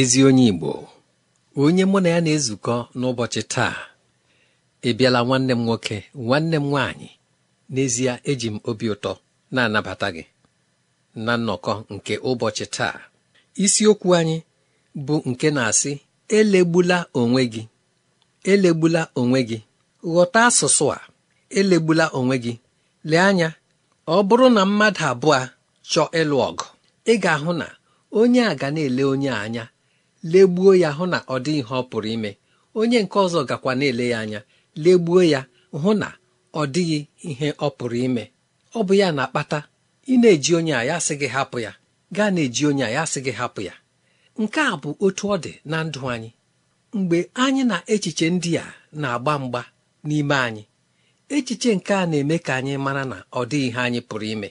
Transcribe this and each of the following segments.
ezi onye Igbo onye mụ na ya na-ezukọ n'ụbọchị taa ị bịala nwanne m nwoke nwanne m nwaanyị n'ezie eji m obi ụtọ na-anabata gị na nnọkọ nke ụbọchị taa isiokwu anyị bụ nke na-asị elegbula onwe gị elegbula onwe gị ghọta asụsụ a elegbula onwe gị lee anya ọ bụrụ na mmadụ abụọ chọọ ịlụ ọgụ ị ga-ahụ na onye a ga na-ele onye anya legbuo ya hụ na ọ dị ihe ọ pụrụ ime onye nke ọzọ gakwa na-ele ya anya legbuo ya hụ na ọ dịghị ihe ọ pụrụ ime ọ bụ ya na-akpata ị na-eji onye a ya sị gị hapụ ya gaa na-eji onye a ya sị gị hapụ ya nke a bụ otu ọ dị na ndụ anyị mgbe anyị na echiche ndị a na-agba mgba n'ime anyị echiche nke a na-eme ka anyị mara na ọ dịghị ihe anyị pụrụ ime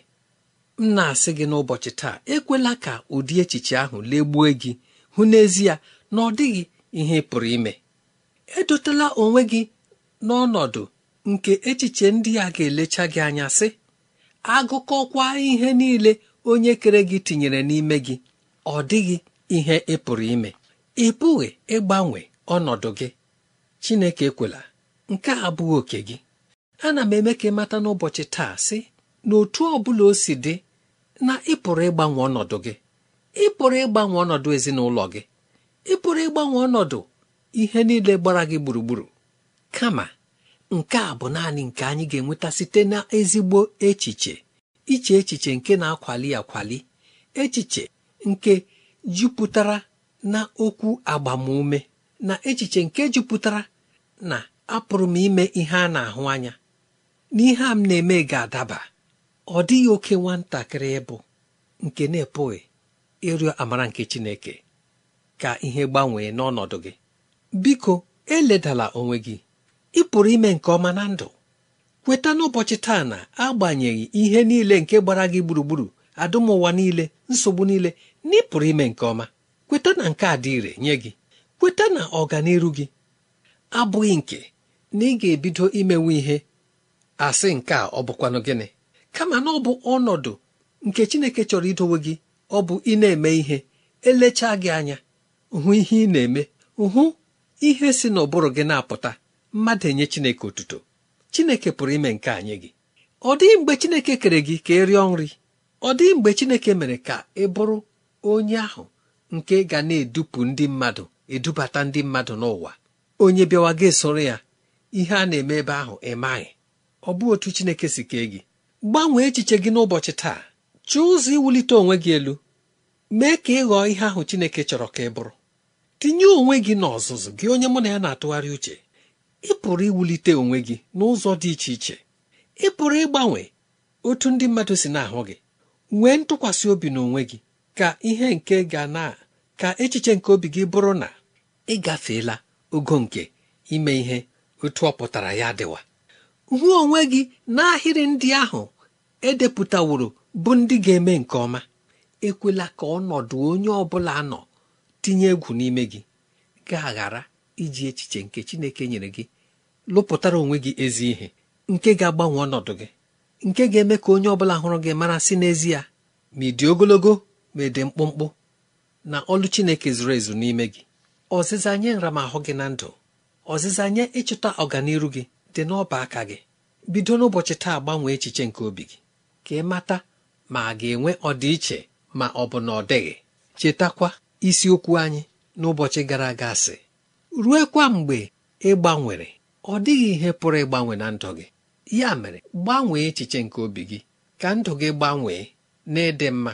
m na-asị gị n'ụbọchị taa ekwela ka ụdị echiche ahụ legbuo gị hụ n'ezie na ọ dịghị ihe pụrụ ime edotela onwe gị n'ọnọdụ nke echiche ndị a ga-elecha gị anya sị agụkọkwa ihe niile onye kere gị tinyere n'ime gị ọ dịghị ihe ị pụrụ ime ị pụghị ịgbanwe ọnọdụ gị Chineke ekwela nke a abụghị oke gị ana m eme ka ị mata n'ụbọchị taa sị na otu ọ bụla o si dị na ị pụrụ ịgbanwe ọnọdụ gị ị pụrụ ịgbanwe ọnọdụ ezinụlọ gị ị pụrụ ịgbanwe ọnọdụ ihe niile gbara gị gburugburu kama nke a bụ naanị nke anyị ga-enweta site na ezigbo echiche iche echiche nke na-akwali akwali echiche nke jupụtara na okwu agbamume na echiche nke jupụtara na apụrụ m ime ihe a na-ahụ anya na ihe a m na-eme ga-adaba ọ dịghị oke nwatakịrị ịbụ nke na-epụghị ịrịọ amara nke Chineke ka ihe gbanwee n'ọnọdụ gị biko eledala onwe gị ị pụrụ ime nke ọma na ndụ kweta n'ụbọchị taa na agbanyeghị ihe niile nke gbara gị gburugburu adụmụwa niile nsogbu niile na ị pụrụ ime nke ọma kweta na nke a dị ire nye gị kweta na ọganiru gị abụghị nke na ị ga-ebido imenwe ihe asị nke a ọ bụkwanụ gịnị kama na ọ bụ ọnọdụ nke Chineke chọrọ idowe gị ọ bụ ị na-eme ihe elechaa gị anya hụ ihe ị na-eme hụ ihe si n'ụbụrụ gị na-apụta mmadụ enye Chineke otuto Chineke pụrụ ime nke anyị gị ọ dịghị mgbe Chineke kere gị ka ị rịọ nri ọ dịghị mgbe Chineke mere ka ị bụrụ onye ahụ nke ga na-edupụ ndị mmadụ edubata ndị mmadụ n'ụwa onye bịawa gị soro ya ihe a na-eme ebe ahụ ị maghị ọ bụ otu Chineke si kee gị gbanwee echiche gị n'ụbọchị taa chọọ ụzọ iwulite onwe gị elu mee ka ị ghọọ ihe ahụ Chineke chọrọ ka ị bụrụ tinye onwe gị n'ọzụzụ gị onye mụ na ya na-atụgharị uche ị pụrụ iwulite onwe gị n'ụzọ dị iche iche ị pụrụ ịgbanwe otu ndị mmadụ si na-ahụ gị nwee ntụkwasị obi n'onwe gị ka ihe nke ga na ka echiche nke obi gị bụrụ na ị gafeela ogo nke ime ihe otu ọ pụtara ya dịwa hụ onwe gị n'ahịrị ndị ahụ edepụtaworo bụ ndị ga-eme nke ọma ekwela ka ọnọdụ onye ọ bụla nọ tinye egwu n'ime gị ga-aghara iji echiche nke Chineke nyere gị lụpụtara onwe gị ezi ihe nke ga-agbanwe ọnọdụ gị nke ga-eme ka onye ọbụla hụrụ gị mara si n'ezie ma ị dị ogologo ma ị dị mkpụmkpụ na ọlụ Chineke zuru ezu n'ime gị ọzịza nye nramahụ gị na ndụ ọzịza nye ịchụta ọganiru gị dị n'ọba aka gị bido n'ụbọchị taa gbanwee echiche nke obi gị ka ị mata ma a ga-enwe ọdịiche ma ọ bụ na ọ dịghị chetakwa isiokwu anyị n'ụbọchị gara aga sị kwa mgbe ị gbanwere ọ dịghị ihe pụrụ ịgbanwe na ndụ gị ya mere gbanwee echiche nke obi gị ka ndụ gị gbanwee n'ịdị mma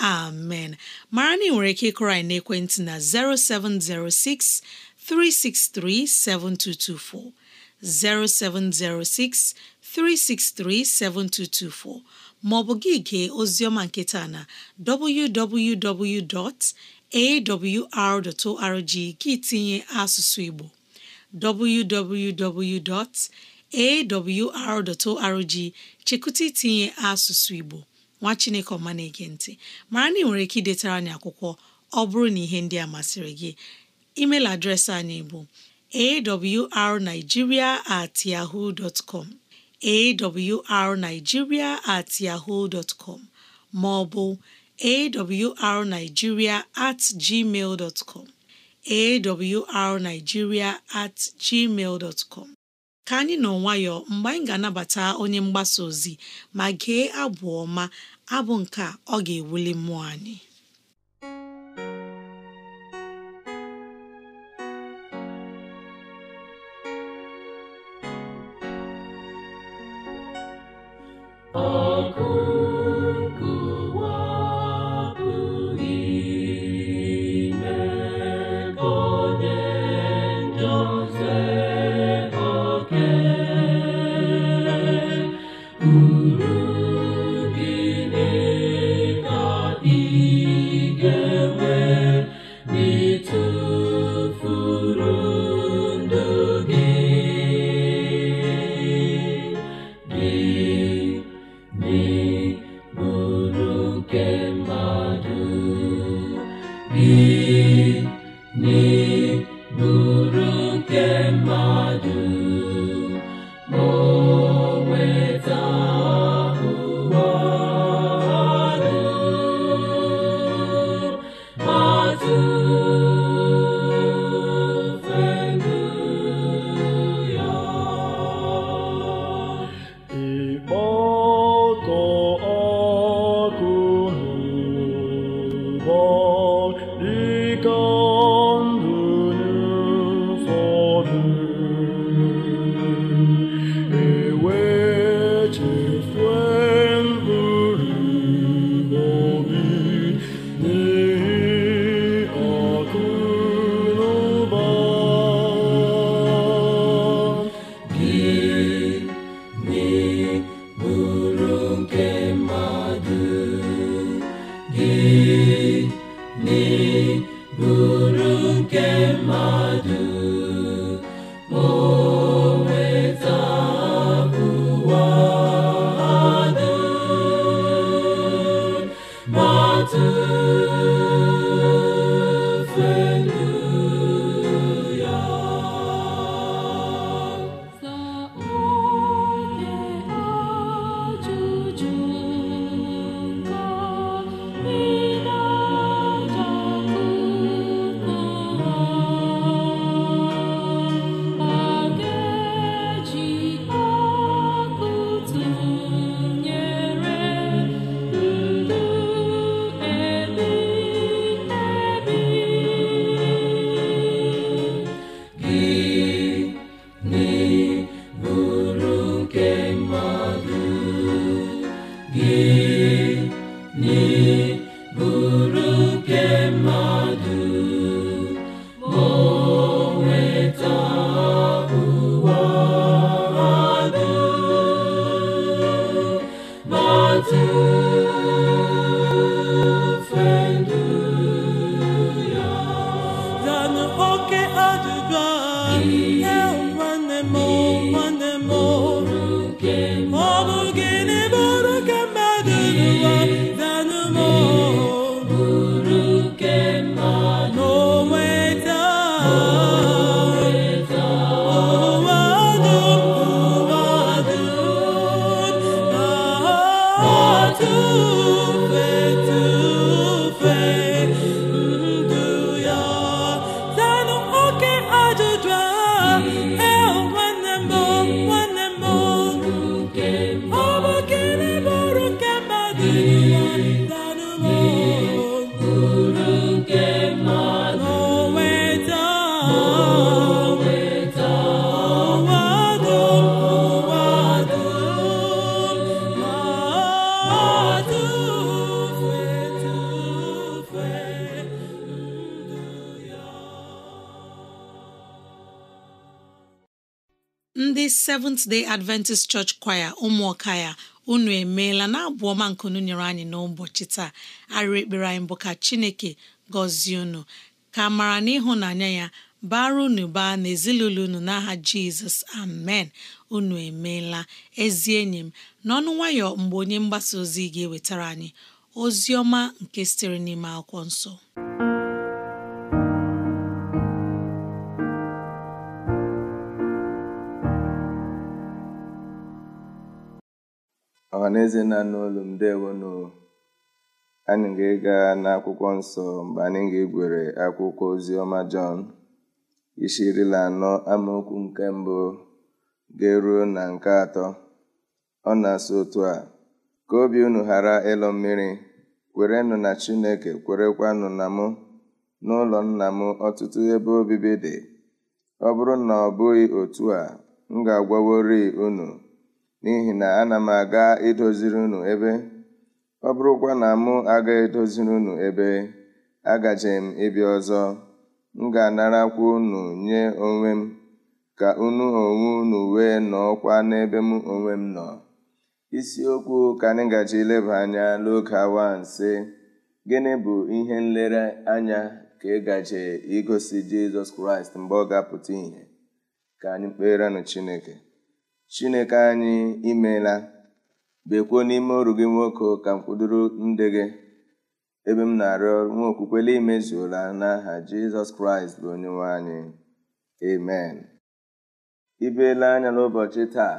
amen mara na nwere ike ịkụrọ anyị n'ekwentị na 0706 363 7224 0706 363 7224 maọbụ gị gee oziọma nketa na www.awr.org gị tinye asụsụ Igbo www.awr.org chekụta itinye asụsụ Igbo nwa chineke ọma na-ege ntị mara na ị nwere ike idetara anyị akwụkwọ ọ bụrụ na ihe ndị a masịrị gị email adreesị anyị bụ awrnigeria at yahoo dot com awrnigeria at yahoo com maọbụ ọ awrnigeria at gmail dot com awrnigeria at gmail dot com ka anyị nọ nwayọọ mgbe anyị ga-anabata onye mgbasa ozi ma gee abụ ọma abụ nke a ọ ga-ewuli mmụọ anyị ọkụ Seventh Day Adventist Church Choir ụmụọka ya unu emeela na abụ ọma nkunu nyere anyị n'ụbọchị taa arịrị ekpere anyị bụ ka Chineke gọzie unu ka mara n'ịhụnanya ya bara unu baa na ezinụlọ unu n'aha Jizọs amen unu emeela ezi enyi m n'ọnụ nwayọ mgbe onye mgbasa ozi ga-ewetara anyị ozi ọma nke sitere n'ime akwụkwọ nsọ Ọ na nna olu m anyị ga-ịga n'akwụkwọ nsọ mgbe anyị ga-egwere akwụkwọ ozi ọma jọn isi iri anọ amaokwu nke mbụ ga-eruo na nke atọ ọ na asa otu a ka obi unu ghara ịlụ mmiri kwerenụ na chineke kwerekwanụ na mụ n'ụlọ nna m ọtụtụ ebe obibi dị ọ bụrụ na ọ bụghị otu a m ga-agwaworị unu n'ihi na ana m aga idoziri unu ebe ọ bụrụkwa na mụ aga edoziri unu ebe agaje m ịbịa ọzọ m ga anarakwu unu nye onwe m ka unu onwe unu wee nọọkwa n'ebe m onwe m nọ isiokwu ka anyị gaji leba anya n'oge awa nse gịnị bụ ihe nlere anya ka ị gaje igosi jizọs kraịst mgbe ọ ga-apụta ihe?" ka anyị kpeerenụ chineke Chineke anyị imeela bekwuo n'ime oru gị nwoke ka m kwudoro ndị gị ebe m na-arịọ nwa okwukwela imezuola n'aha Jizọs Kraịst bụ onyenwe anyị amen ibeela anya n'ụbọchị taa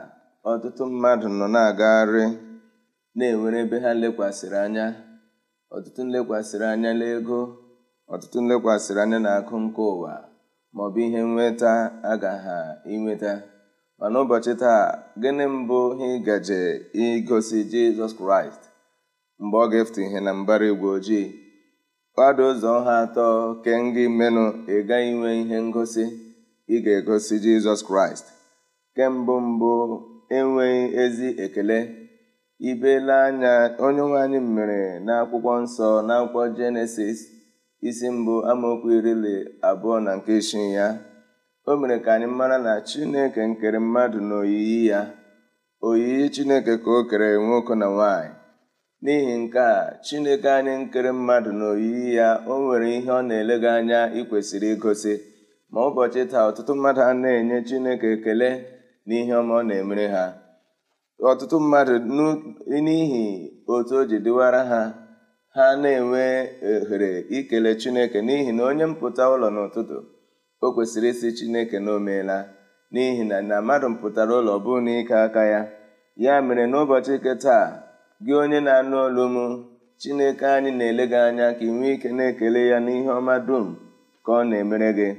ọtụtụ mmadụ nọ na-agagharị na-enwere ebe ha lekwasịrị anya ọtụtụ nlekwasịrị anya n'ego ọtụtụ nlekwasịrị anya na akụ nke ụwa ma ọ bụ ihe nweta ha inweta ma n'ụbọchị taa gịnị mbụ ihe gaje igosi jizọs kraịst mgbe ọ ga-efute ihe na mbara igwe ojii kwado ụzọ ha atọ ke gị menụ ị gaghị inwe ihe ngosi ị ga-egosi jizọs kraịst kembụ mbụ enweghị ezi ekele ibela anya onye nwe anyị mere n'akwụkwọ nsọ n'akwụkwọ jenesis isi mbụ amaokwu iri abụọ na nke isii ya o mere ka anyị mara na chineke nkere mmadụ na oyiyi ya oyiyi chineke ka o kere nwoke na nwanyị n'ihi nke a chineke anyị nkere mmadụ na oyiyi ya o nwere ihe ọ na-elega anya ikwesịrị igosi ma ụbọchị taa ọtụtụ mmadụ a na-enye chineke ekele na ihe ọma ọ na-emere ha ọtụtụ mmadụ n'ihi otu o ji dịwara ha ha na-enwe ohere ikele chineke n'ihi na onye mpụta ụlọ n'ụtụtụ o kwesịrị ịsị chineke na o meela n'ihi na na mmadụ pụtara ụlọ bụ na ike aka ya ya mere n'ụbọchị nke taa gị onye na-anụ olu m chineke anyị na-ele gị anya ka ị nwee ike na-ekele ya n'ihe ọma dum ka ọ na-emere gị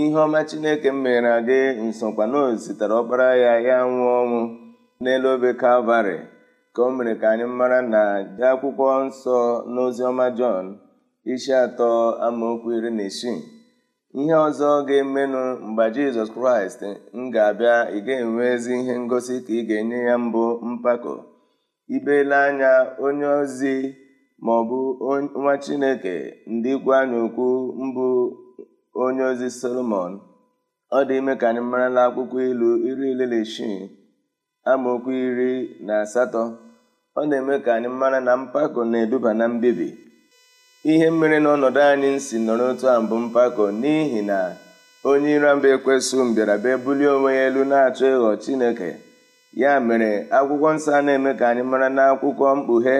ihe ọma chineke m mere gị nsọkwa na ozitere ọkpara ya ya nwụọ ọnwụ n'elu obe kalvarị ka o mere ka anyị mara na dị akwụkwọ nsọ n'Oziọma jọn isi atọ amaokwu iri na isii Ihe ọzọ ga-emenụ mgbe Jizọs Kraịst m ga-abịa ị ga-enwe ezi ihe ngosi ka ị ga-enye ya mbụ mpako ibele anya onye ozi ma ọ bụ nwa Chineke ndị ikwu anyị mbụ onye ozi Solomon ọ dị ime ka anyị marala akwụkwọ ilu iri ileleshi amaokwu iri na asatọ ọ na-eme ka anyị mara na mpako na-eduba na mbibi ihe mere na ọnọdụ anyị si nọrọ otu a mbụ mpako n'ihi na onye ịramba mbịara mbịaraba bulie onwe ya elu na-achọ ịghọ Chineke ya mere akwụkwọ nsọ na-eme ka anyị mara na akwụkwọ mkpughe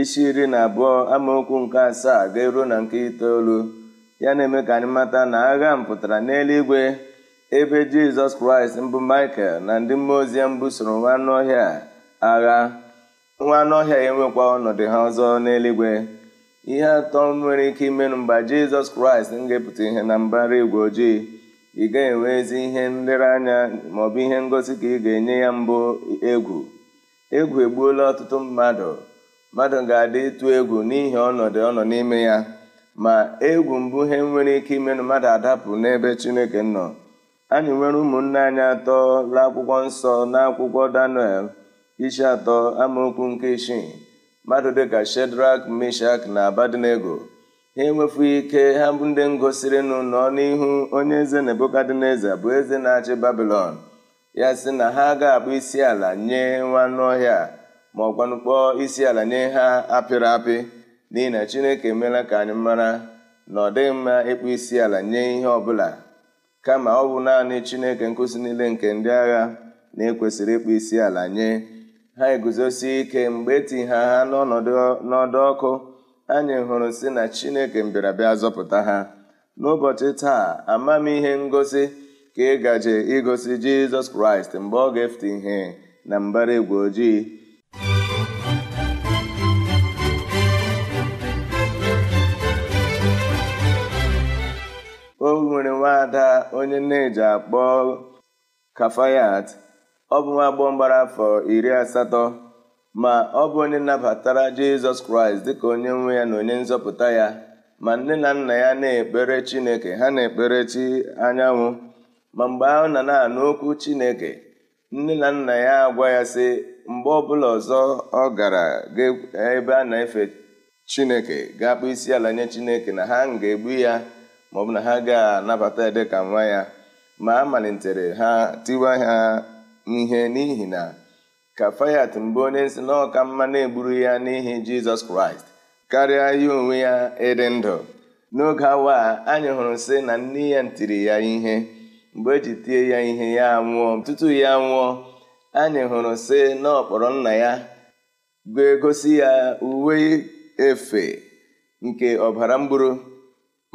isi iri na abụọ amaokwu nke asaa ga-eruo na nke itoolu ya na-eme ka anyị mata na agha m pụtara n'eluigwe ebe jizọs kraịst mbụ michael na ndị mmụọ ozi mbụ soro nwa anụ ọhịa agha nwa anụ ọhịa enwekwa ọnọdụ ha ọzọ n'eluigwe ihe atọ nwere ike imenụ mgbe jizọs kraịst ngepụta ihe na mbara igwe ojii ị gaghị enwe ezi ihe nlereanya maọbụ ihe ngosi ka ị ga-enye ya mbụ egwu egwu egbuola ọtụtụ mmadụ mmadụ ga-adị ịtụ egwu n'ihi ọnọdụ ọ nọ n'ime ya ma egwu mbụ ihe nwere ike imenụ mmadụ adapụ n'ebe chineke nọ anyị nwere ụmụnne anyị atọ la akwụkwọ nsọ na akwụkwọ daniel isi atọ amaokwu nke isii mmadụ dịka shedrak mishak na abadnego ha enwefu ike ha bụ ndị ngosirinụ nọ n'ihu onye eze nebukadneza bụ eze na-achị babilon ya sị na ha ga-akpụ isi ala nye nwanụ ọhịa ma ọgwanụ kpọọ isi ala nye ha apịrị apị n'ihi na chineke emeela ka anyị mara na ọ dịghị mma ịkpụ isi ala nye ihe ọbụla kama ọ bụ naanị chineke nkụzi niile nke ndị agha na-ekwesịrị ịkpụ isi ala nye ha eguzosi ike mgbe eti ha ha n'ọdụ ọkụ anyị hụrụ si na chineke mbịarabịa zọpụta ha n'ụbọchị taa amamihe ngosi ka ị gaje igosi jizọs kraịst mgbe ọ ga-efute ihe na mbara igwe ojii o nwere nwaada onye na-eji akpọ kafayat ọ bụ nwa agbọghọ mgbara afọ iri asatọ ma ọ bụ onye nabatara jizọs kraịst dịka onye nwe ya na onye nzọpụta ya ma nne na nna ya na-ekpere chineke ha na-ekpere chi anyanwụ ma mgbe ahụ na na-anụ okwu chineke nne na nna ya agwa ya sị mgbe ọbụla ọzọ ọ gara ebe a na-efe chineke ga-akpụ isi ala nye chineke na ha ga-egbu ya maọbụ na ha ga-anabata ya dịka nwa ya ma a malitere ha tiwa ha ihe n'ihi na kafayat mbụ onye nsị na ọka mma na-egburu ya n'ihi jizọs kraịst karịa ya onwe ya ịdị ndụ n'oge awa a anyị hụrụ sị na nne ya ntiri ya ihe mgbe eji tie ya ihe ya nwụọ tutu ya nwụọ anyị hụrụ sị na ọkpọrọ nna ya ga-egosi ya uwe efe nke ọbara mgburu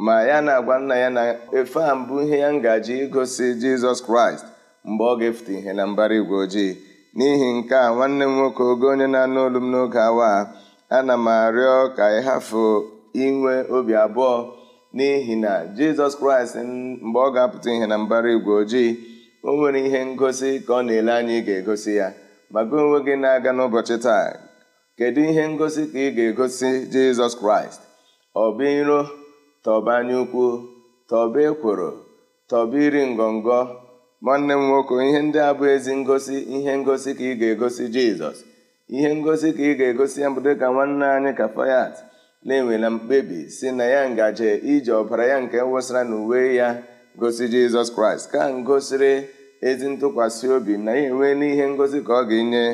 ma ya na-agwa nna ya na efe a mbụ ihe ya ngaji igosi jizọs kraịst mgbe ọ ga-efute ihe na mbara igwe ojii n'ihi nke a nwanne m nwoke ogo onye na-anụ olu m n'oge awa ana m arịọ ka ị hafụ inwe obi abụọ n'ihi na jizọs kraịst mgbe ọ ga-apụta ihe na mbara igwe ojii o nwere ihe ngosi ka ọ na-ele anya ị ga-egosi ya maga onwe gị na-aga n'ụbọchị taa kedu ihe ngosi ka ị ga-egosi jizọs kraịst ọba iro tọba anya ukwu tọba ekworo tọba iri ngọngọ nwanne m nwoke ihe ndị a bụ ezi ngosi ihe ngosi ka ị ga-egosi jizọs ihe ngosi ka ị ga-egosi ya bụ dịka nwanne anyị kafayat na-enwela mkpebi si na ya ngaji iji ọbara ya nke wụsara n'uwe ya gosi jizọs kraịst ka ngosiri ezi ntụkwasị obi na ya enwe n'ihe ngosi ka ọ ga-enye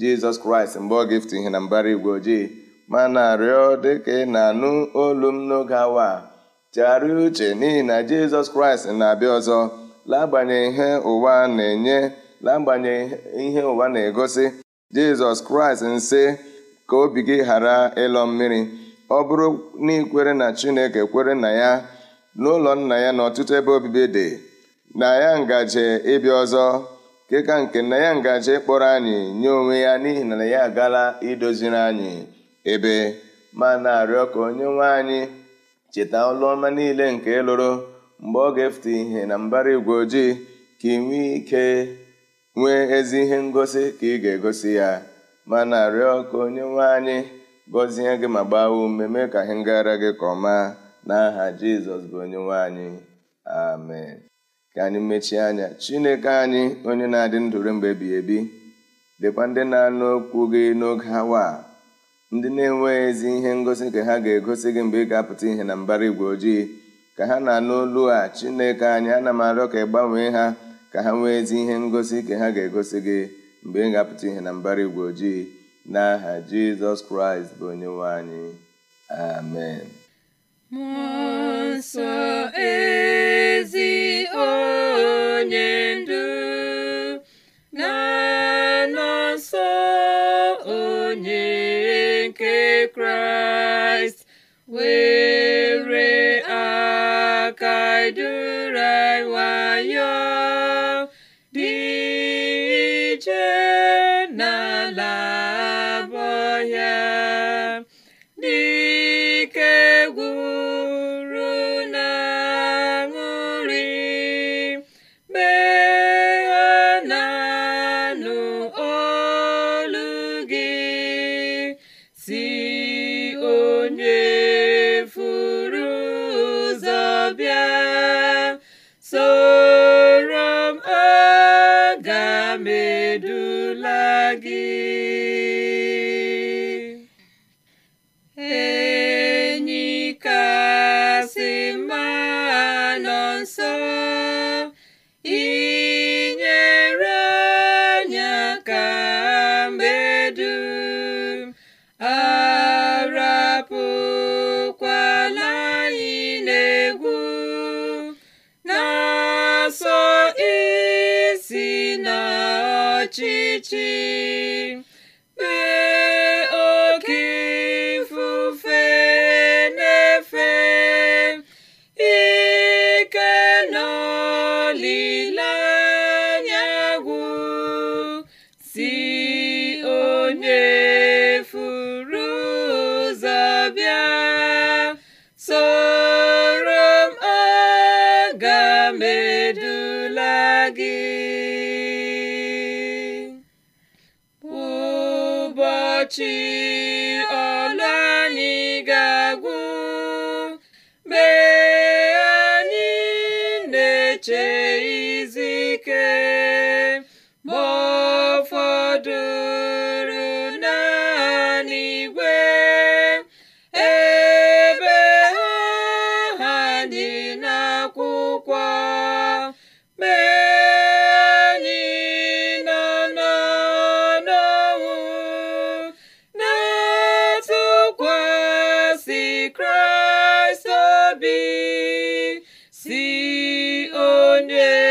jizọs kraịst mgbe ọ ga ihe na mbara igwe ojii mana rịọ dịka ị na-anụ olu m n'oge awa a chegharịa uche n'ihi na jizọs kraịst na-abịa ọzọ n'agbanyeghị ihe ụwa na-enye n'agbanyeghị ihe ụwa na-egosi jizọs kraịst nsị ka obi gị ghara ịlọ mmiri ọ bụrụ na ikwere na chineke kwere na ya n'ụlọ nna ya na ọtụtụ ebe obibi dị na ya ngaji ịbịa ọzọ keka nke na ya ngaji kpọrọ anyị nye onwe ya n'ihi na ya agala idoziri anyị ebe ma na-arịọ ka onye nwe anyị cheta ọlụ ọma niile nke lụrụ mgbe ọ ga-efute ihe na mbara igwe ojii ka ị nwee ike nwee ezi ihe ngosi ka ị ga-egosi ya ma na ka onye nwe anyị gọzie gị ma gbaa ume mee ka ihe ngara gị ka ọma n'aha jizọs bụ onye nwe anyị amen ka anyị mechie anya chineke anyị onye na-adị ndụ mgbe ebighị ebi dịkwa ndị na-anụ okwu gị n'oge awa ndị na-enweghị ezi ihe ngosi ka ha ga-egosi gị mgbe ị ga-apụta ihe na mbara igwe ojii ka ha na-anụ a chineke anyị ana m arịọ ka ị gbanwee ha ka ha nwee ezi ihe ngosi ka ha ga-egosi gị mgbe ị ga-apụta ihe na mbara igwe ojii n'aha jizọs kraịst bụ onyenwe anyị amen mmụọ ezi onye ndu na onye nke kraịst I onye furu ụzọ bịa soro m aga medula gị ụbọchị Yay!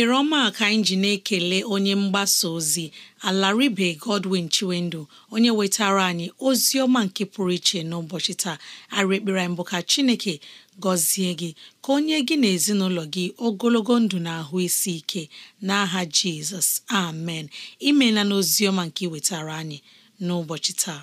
ohere ọma ka anyị ji na-ekele onye mgbasa ozi alaribe Godwin Chiwendu onye wetara anyị ozi ọma nke pụrụ iche n'ụbọchị taa arị ekpere anyị ka Chineke gọzie gị ka onye gị na ezinụlọ gị ogologo ndụ na ahụ isi ike n'aha Jizọs amen imela n'ozi ọma nke ị wetara anyị n'ụbọchị taa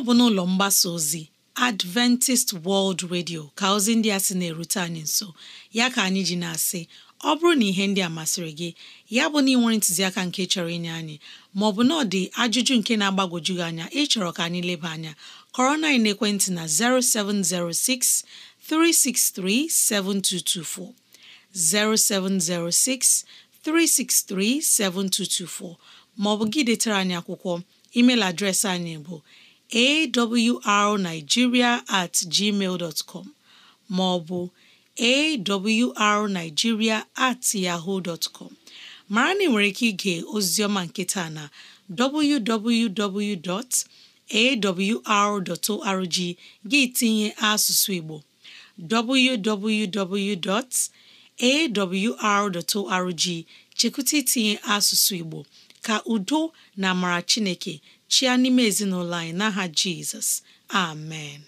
ọ bụ n'ụlọ mgbasa ozi Adventist World Radio ka ozi ndị a sị na-erute anyị nso ya ka anyị ji na-asị ọ bụrụ na ihe ndị a masịrị gị ya bụ na ị nwere ntụziaka nke chọrọ inye anyị maọbụ na ọ dị ajụjụ nke na-agbagwoju gị anya ịchọrọ ka anyị leba anya kọrọ na ekwentị na 0706 363 7224 0706 363 7224 maọbụ gị detara anyị akwụkwọ email adreesị anyị bụ arnigiria at gmail dot com ma ọ bụ at yahoo dot com mara na ị nwere ike ige ozioma nketa na www.awr.org gị tinye asụsụ Igbo www.awr.org chekwụta itinye asụsụ Igbo ka udo na amara chineke chia n'ime ezinụlọ anyị n'aha jizọs amen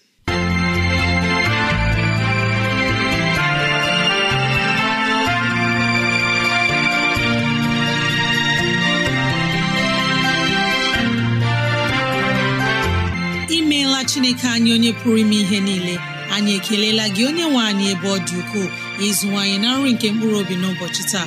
imeela chineke anyị onye pụrụ ime ihe niile anyị ekelela gị onye nwe anyị ebe ọ dị ukwuu ịzụwanyị na nri nke mkpụrụ obi n'ụbọchị taa